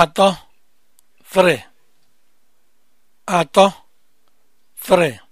atọ, three, atọ, three.